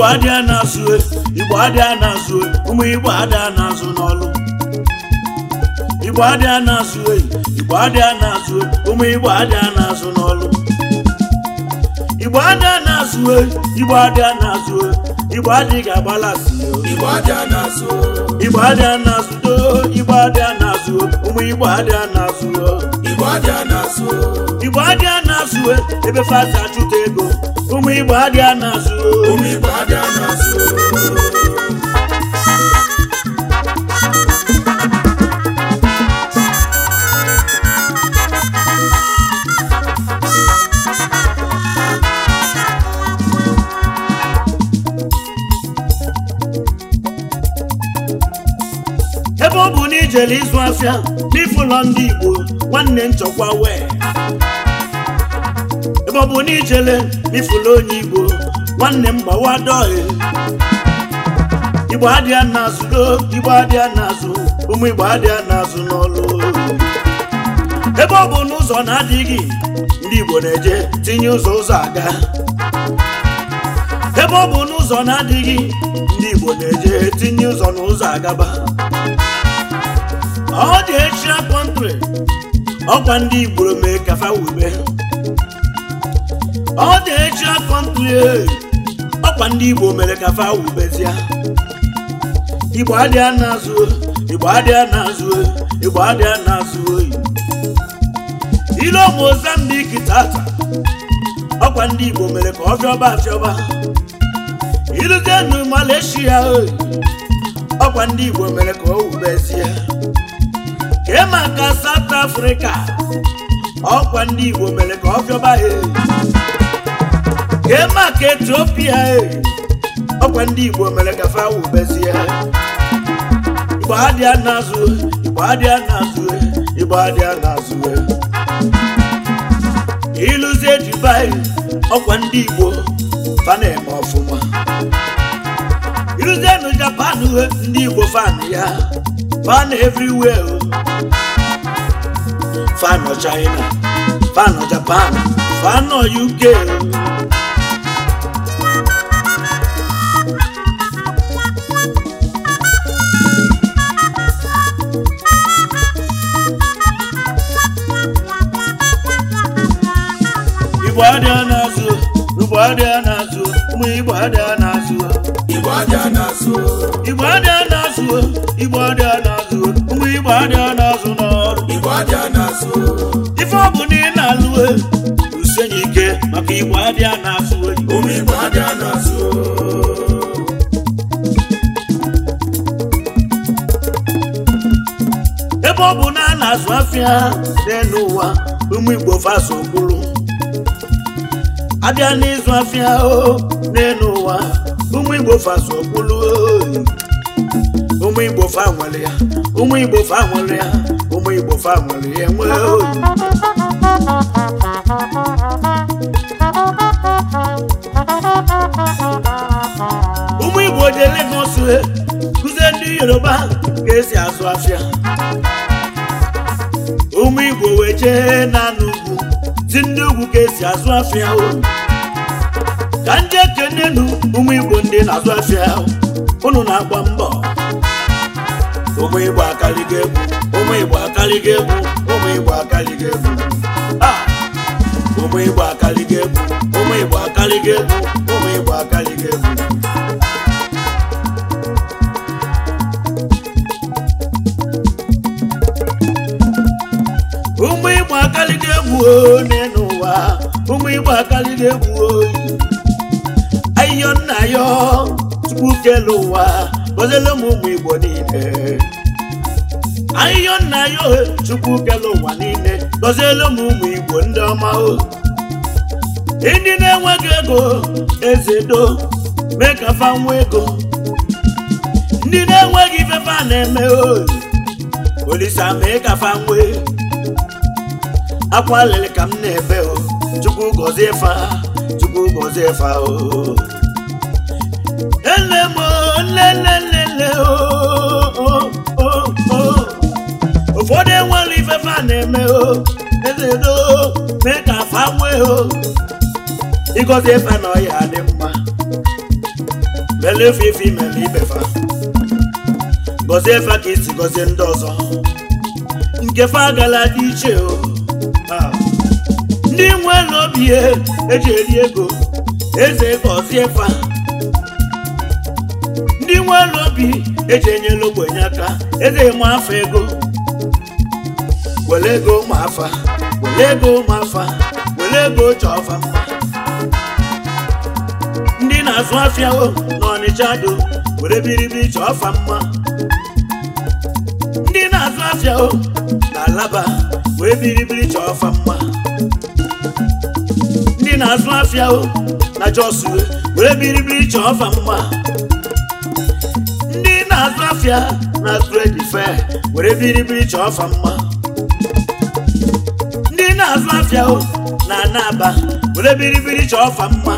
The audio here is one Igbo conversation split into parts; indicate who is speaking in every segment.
Speaker 1: igbo adịa na-azụ e, igbo adịa na e, ụmụ igbo adị na n'ọlụ igbo na-azụ igbo adịa n'ọlụ igbo adịa e, igbo adịa igbo adịa na-asụ igbo adịa na-asụ ụmụ igbo adịa na-asụ igbo adịa na-asụ e, ebe fasa achụta ego ụmụ igbo adịa na-asụ jere ịzụ afịa n'ịfụ ndị Igbo nwanne nchọkwa wee ebe ọ bụ na ijele onye Igbo nwanne m gbawa dọghị Igbo adịa n'azụ Igbo adịa n'azụ ụmụ Igbo adịa n'azụ n'ọlụ ebe ọ bụ n'ụzọ na-adịghị ndị Igbo na-eje tinye ụzọ ụzọ aga ebe ọ bụ n'ụzọ na-adịghị ndị Igbo na-eje tinye ụzọ n'ụzọ agaba Ọ dị Asian country ọkwa ndị Igbo mee kafa wube Ọ dị Asian country ọkwa ndị Igbo mere kafa wubezie Igbo adịa na-azụ Igbo adịa na-azụ Igbo adịa na-azụ oyi ile Mozambique tata ọkwa ndị Igbo mere ka ọ fịọba afịọba iruzie nu Malaysia oyi ọkwa ndị Igbo mere ka o wubezie kee maka South Africa ọkwa ndị Igbo mere ka ọ fiọba ha kee maka Ethiopia ọkwa ndị Igbo mere ka fa wubezie Igbo adịa n'azụ Igbo adịa n'azụ Igbo adịa n'azụ ịlụzie Dubai ọkwa ndị Igbo faneme ọfụma ịlụzie nụ Japan ndị Igbo fan ya fan everywhere fan China, fan Japan, fan UK. Igbo adịa n'azụ, Igbo adịa n'azụ, ụmụ Igbo adịa n'azụ. Igbo Igbo adịa n'azụ, Igbo ụmụ Igbo adịa n'azụ na-asụ. ife ọ bụ na ị na-alụwe usenye ike maka igbo adịa na-asụ ebe ọ bụ na a na-azụ afịa n'ụwa ụmụ igbo faso kwuru abịa n'ịzụ afịa n'elu ụwa ụmụ igbo faso kwuru ụmụ igbo fa nwere ya ụmụ igbo fa nwere ya ụmụ igbo fa nwere ihe nwee ụmụ igbo ji Lagos he kụzie ndị yoruba ka esi azụ afịa ụmụ igbo wee jee n'ala ugwu si ndị ugwu ka esi azụ afịa ka ndị ekenenu ụmụ igbo ndị na-azụ afịa unu na-agba mbọ ụmụ Igbo akaligo egwu ụmụ Igbo akaligo egwu ụmụ Igbo akaligo ah! egwu ụmụ Igbo akaligo egwu ụmụ Igbo akaligo egwu ụmụ Igbo akaligo egwu ụmụ Igbo akaligo egwu n'ụwa ụmụ Igbo akaligo egwu oyi ayọ nna ya tupu kele ụwa gọziele m ụmụ igbo niile ahịhịa nna ya ohe chukwu kele ụwa niile gọziele m ụmụ igbo ndị ọma o ndị na-enweghị ego ezedo mee ka fa nwa ego ndị na-enweghị ifefe a na-eme o olisa mee ka fa nwee akwa ka m na-ebe o chukwu gọzie fa chukwu gọzie fa o nne m nne nne ụfọdụ enwere ifefe a na-eme o ezedo mee ka afa nwee o ịgọzi efe na ọya dị mma mele ife ife imele ibefa gosi efe ka isi gosi ndị ọzọ nke fa agala dị iche o ndị nwe n'obi eji eri ego eze gọzie fa ndị nwe n'obi eji enye n'ogbenye aka eze ma afọ ego were ego ma afa were ego ma afa were ego chọfa mma ndị na-azụ afịa o, n'ọnịcha do were biribiri chọfa mma ndị na-azụ afịa o na alaba wee biribiri chọfa mma ndị na-azụ afịa o na jos were biribiri chọfa mma ndị na-azụ afịa na trade fair were biribiri chọfa mma azụ afịa o na anaba were biribiri chọọ fa mma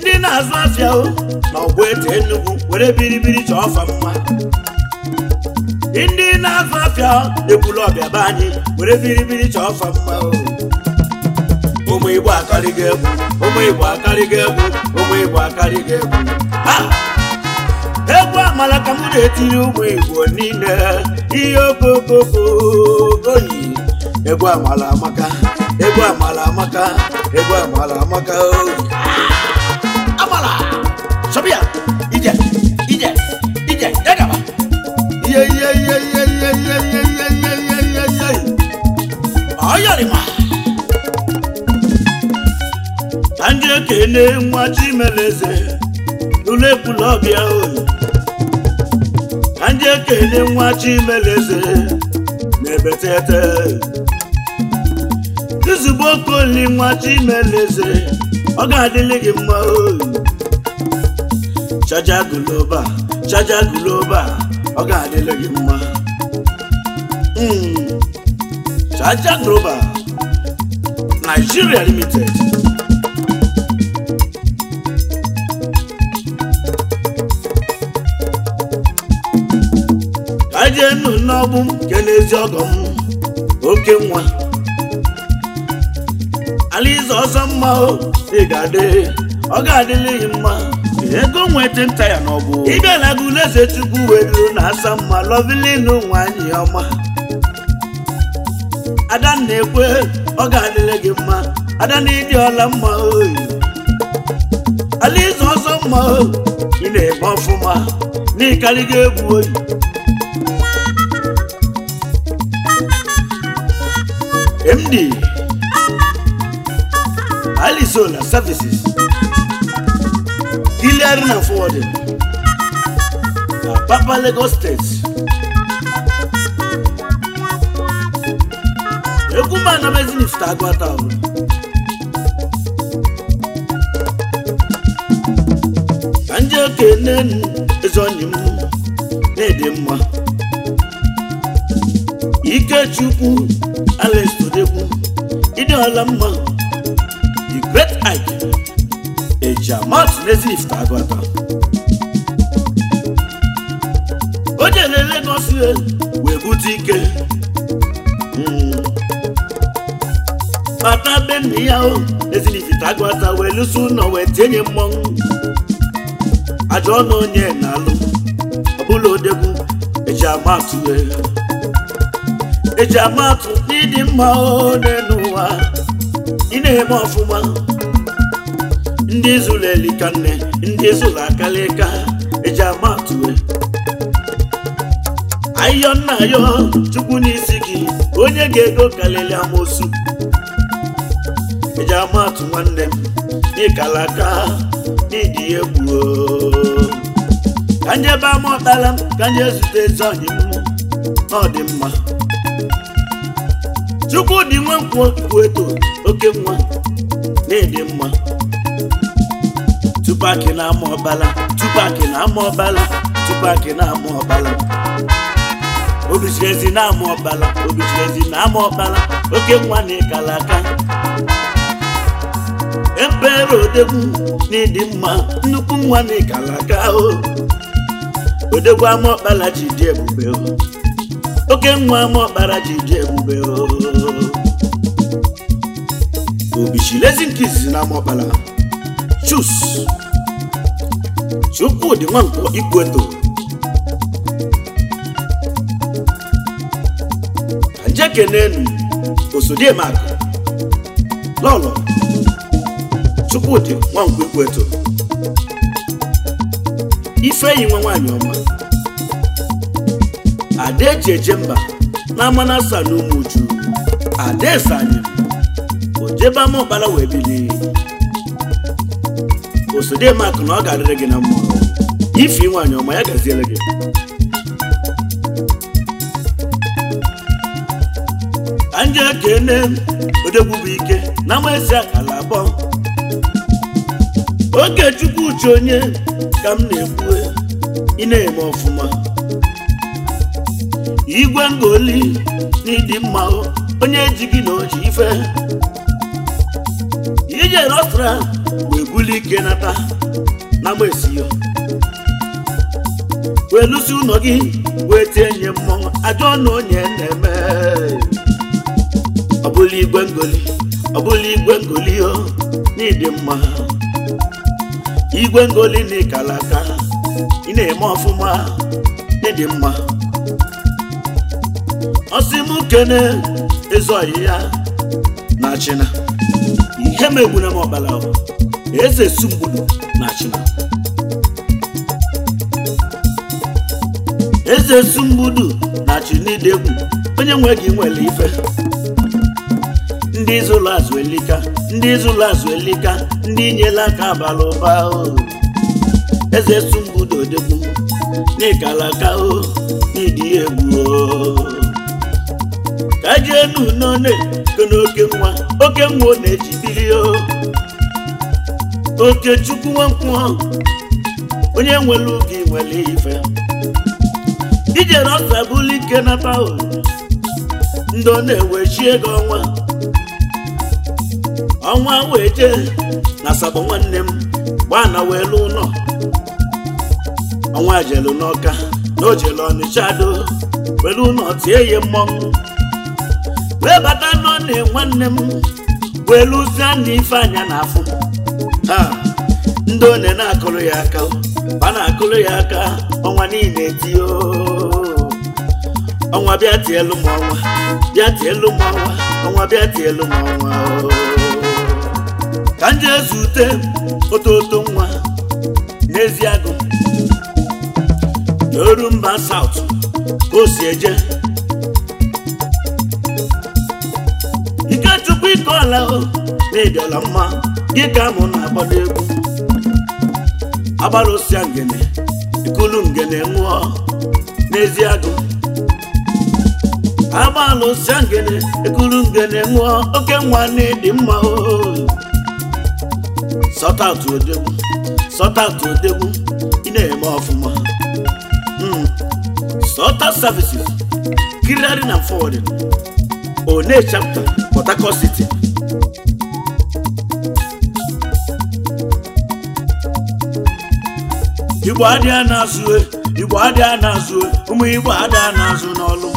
Speaker 1: ndị na-azụ afịa o na ọgwụ ete Enugu were biribiri chọọ fa mma ndị na-azụ afịa ekwulu ọbịa be anyị were biribiri chọọ fa mma o ụmụ Igbo akarịgo egwu ụmụ Igbo akarịgo egwu ụmụ Igbo akarịgo egwu egwu amala ka m na-etiri ụmụ Igbo niile ihe okokoko oyi egwu amala amaka egwu amala amaka egwu amala amaka amala sọbịa ije ije ije yagaba iye iye iye iye iye iye iye iye iye iye iye iye ọyọrịma ka ndị ekene nwa chimeleze lụlụ ekwula ọbịa oyi ka ndị ekene nwa chimeleze na-ebetete ozugbo okoli nwa chimeleze ọ ga-adịlị gị mma o chaja guloba chaja guloba ọ ga-adịlị gị mma hmm. chaja guloba Nigeria Limited ka jee nụ n'ọgbụ m nke n'ezi ọgọ m oke nwa ala ịzụ ọsọ mma ị ga-adị ọ ga-adịlighị mma ego nweta nta ya n'ọbụ ịbịala gị eze chukwu wee ruru na asa mma lọvilinu nwanyị ọma adanna ekwe ọ ga-adịrị gị mma adanna ịdị ọla mma oyi ịzụ ọsọ mma ị na-eme ọfụma gị egwu oyi na Services Delivery na Forwarding na Papa Lagos State Egwuma Anambezi Nifta Agwata ahụ ka ndị okenye eze onye m na-ede mma Ikechukwu Alex Todekwu ịdị ọla mma Ike Ejiamat Nazifi Agụata o jele Lagos wee bute ike bata hmm. be nna ya o Nazifi Agụata wee lụso ụlọ wee tinye mmọnwụ ajọ ọnụ onye na-alụ ọbụla odegwu Ejiamat Ejiamat n'ịdị mma ọ n'elu ị na-eme ọfụma ndị zụrụ elika nne ndị zụrụ akalịka eji ama atụwe ayọ nna ayọ chukwu n'isi gị onye ga-ego kalịlị amosu eji ama atụ nwanne m n'ịkalaka n'ịdị egwu ka nye ebe ama ọtala m ka nje zute ezi ọnyị m na ọ dị mma chukwu dị nwe nkwụ eto oke nwa na-ede mma tupu akị na-ama ọbala tupu na-ama ọbala tupu akị na-ama ọbala obichiezi na-ama ọbala obichiezi na-ama ọbala oke nwa na ịkala aka ebere odegwu na ịdị mma nnukwu nwa na ịkala aka o odegwu ama ọbala ji dị ebube oke nwa ama ọkpara ji dị ebube obichilezi nke izizi na ama ọbala. Chus Chukwudị Nwankpọ maka Ajekenenu Osodiemaku Lọlọ Chukwudị Nwankpọ ife Ifeyi nwa nwaanyị ọma eje mba na Amanasa na Umuju Adaeze anyị ojebe ama ọbara wee bilie osode maka na ọ ga-adịrị gị na mma ife nwaanyị ọma ya gaziere gị anje kene odegwu bụ ike na maezi akala abụọ oge chukwu uche onye ka m na-ekwu ị na-eme ọfụma igwe ngoli na ịdị onye ji gị na oji ife ijere ọsara ebuli ike nata na gbesiyo wee lụsi ụlọ gị wee tie nye mmọnwụ ajọ na onye na-eme ọbụla igwe ngoli ọbụla igwe ngoli o n'ịdị mma igwe ngoli na ịkala ị na-eme ọfụma n'ịdị mma ọsị m kene ezu ọyị ya na china ihe megbuna m ọkpala ahụ eze Sumgbulu National eze na Chinidegwu onye nwe gị nwere ife ndị zụlụ azụ elika ndị zụlụ azụ elika ndị nyela aka abalị ụba o eze Sumgbulu Odegwu n'ikalaka o n'ịdị egwu o ka jee n'unone oke nwa oke nwa na-ejibiri Okechukwu Nwankwọ onye nwere oge nwere ife ijere ọsa bụlụ ike nata ndị ọ na-ewechi ego ọnwa ọnwa wee jee na asabụ nwanne m gbaa na wee ụlọ ọnwa jelu n'ọka na o jelu ọnịcha do ụlọ tie ya mmọnwụ wee bata n'ọnị nwanne m wee lụzie na ife anya na ndị one na-akụrụ ya aka a na-akụrụ ya aka ọnwa niile tie ọnwa bịa tielu m ọnwa bịa tielu m ọnwa ọnwa bịa tielu m ọnwa ka m jee zute ototo nwa n'ezi agụ oru mba saut ka o si eje Ikechukwu ike ọla na ịdịọla mma gị ka mụ na-agbado egwu agbara osia ngene ikulu ngene nwụọ n'ezi agụ agbalụ osia ngene ikulu ngene nwụọ oke nwanne dị mma oo sọtatụ odegbu sọtatụ odegbu ị na-eme ọfụma hmm, sọta services kirari na forwarding one chapter Port Harcourt City igbo adịa na-azụ e. igbo adịa e. na-azụ ụmụ igbo adịa na-azụ n'ọlụ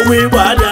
Speaker 1: ụmụ igbo adịa